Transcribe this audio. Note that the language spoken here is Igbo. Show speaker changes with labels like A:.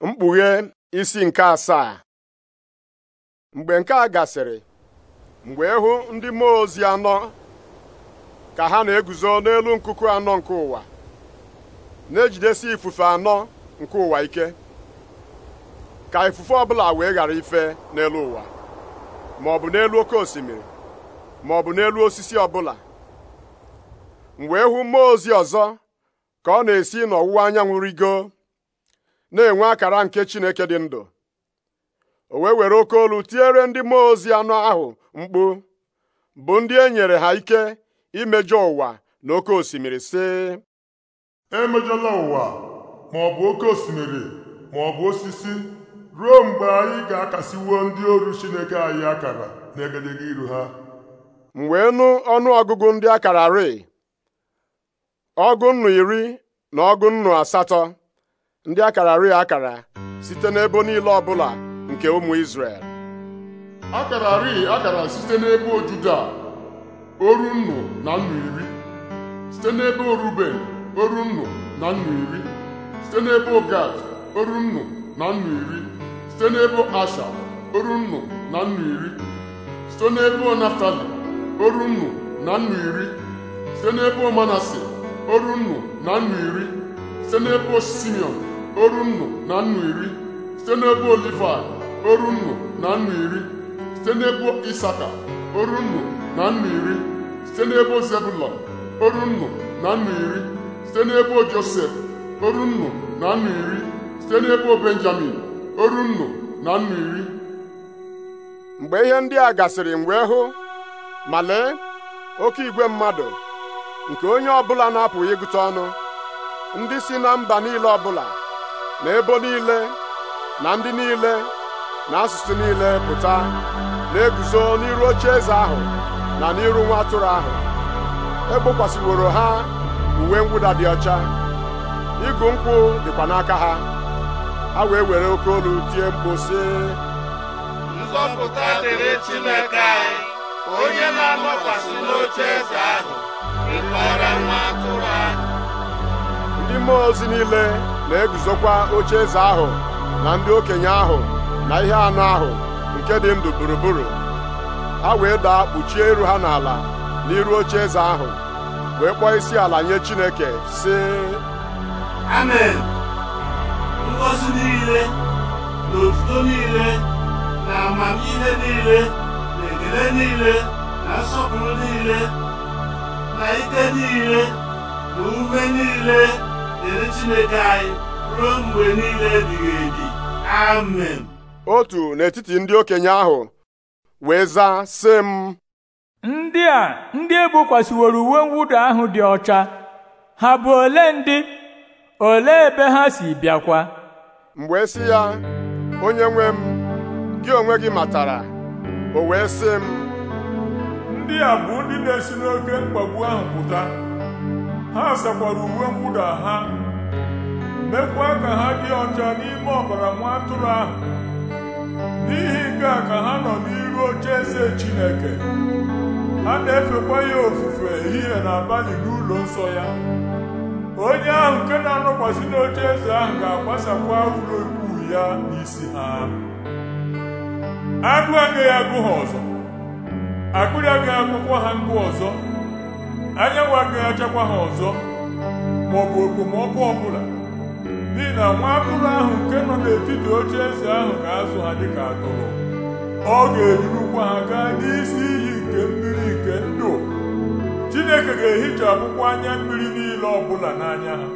A: mkpughe isi nke asaa mgbe nke a gasịrị mgbe ịhụ ndị mmụọ ozi anọ ka ha na-eguzo n'elu nkuku anọ nke ụwa na-ejidesi ifufe anọ nke ụwa ike ka ifufe ọbụla wee ghara ife n'elu ụwa ma ọ bụ n'elu oke osimiri ma ọ bụ n'elu osisi ọbụla mgbe wee mmụọ ozi ọzọ ka ọ na-esi n'ọwụwa anyanwụ rigo na-enwe akara nke Chineke dị ndụ o wee were oke olu tiere ndị mmụọ ozi anọ ahụ mkpu bụ ndị e nyere ha ike imejọ ụwa na oke osimiri sị emejọla ụwa ma ọ bụ oke osimiri ma ọ bụ osisi ruo mgbe anyị ga-akasiwuo ndị oru Chineke anyị akara n'egedege iru ha m wee nụ ọnụ ọgụgụ ndị akara rịị ọgụ nnu iri na ọgụ nnu asatọ ndị akara akararị akara site n'ebo niile ọbụla nke ụmụ Izrel
B: akararị akara site n'ebo Juda oru nnu na nnu iri site n'ebe Oruben oru nnu na nnu iri site n'ebe Gad oru nnu na nnu iri site n'ebo Asha oru nnu na nnu iri site n'ebo Naftali oru nnu na nnu iri site n'ebo manasi oru nnu na nnu iri site n'ebo Simeon oru nnụ na nnụ iri site n'ebe Olifai oru nnụ na nnụ iri site n'ebe Isaka oru nnụ na nnụ iri site n'ebe zebulon oru nnụ na nnụ iri site n'ebe Josef oru nnụ na nnụ iri site
A: n'ebe Benjamin oru nnụ na nnụ iri mgbe ihe ndị a gasịrị mgbe wee hụ ma lee oke igwe mmadụ nke onye bụla na-apụghị ịgụta ọnụ ndị si na mba niile bụla. na ebo niile na ndị niile na asụsụ niile pụta na-eguzo n'iru oche eze ahụ na n'iru nwa atụrụ ahụ egbokwasịworo ha uwe mwụda dị ọcha igu nkwụ dịkwa n'aka ha ha wee were oke olu tie mkpu si. nzọpụta dịrị Chineke anyị onye na-anọkwasị n'oche eze ahụ ịkpọrọ nwa atụrụ ahụ ndị mmụọ ozi niile na-eguzokwa oche eze ahụ na ndị okenye ahụ na ihe anụ ahụ nke dị ndụ gburugburu ha wee daa kpuchie iru ha n'ala n'iru oche eze ahụ wee kpọọ isi ala nye Chineke sị amen ngọzi niile na otuto niile na amamihe niile
C: na ekele niile na nsọpụrụ niile na ike niile na ume niile dịrị Chineke anyị ruo mgbe niile
A: ebighị ebi amen otu n'etiti ndị okenye ahụ wee zaa sị m ndị a ndị ebukwasịworo uwe mwụda ahụ dị ọcha ha bụ ole ndị ole ebe ha si bịakwa Mgbe wee ya onye nwe m gị onwe gị matara o wee
C: sị m ndị a bụ ndị na-esi n'oke mkpagbu ahụ pụta ha sakwara uwe mwụda ha mekwa ka ha dị ọcha n'ime ọbara nwa atụrụ ahụ n'ihi nke a ka ha nọ n'iru oche eze Chineke ha na-efekwa ya ofufe ehihie na abalị n'ụlọ nsọ ya onye ahụ nke na-anọkwasị n'oche eze ahụ ga-agbasakwa ụlọ ikwu ya n'isi ha agụ agaghị agụ ha ọzọ akwụkwọ ha ngụ ọzọ anyanwụ agaghị achakwa ha ọzọ ma ọ maọbụ okpomọkụ ọbụla n'ihi na nwa atụrụ ahụ nke nọ n'etiti oche eze ahụ ga-azụ ha dịka atụrụ ọ ga-edurukwa ha gaa n'isi iyi nke mmiri nke ndụ chineke ga-ehichapụkwa anya mmiri niile ọbụla n'anya ha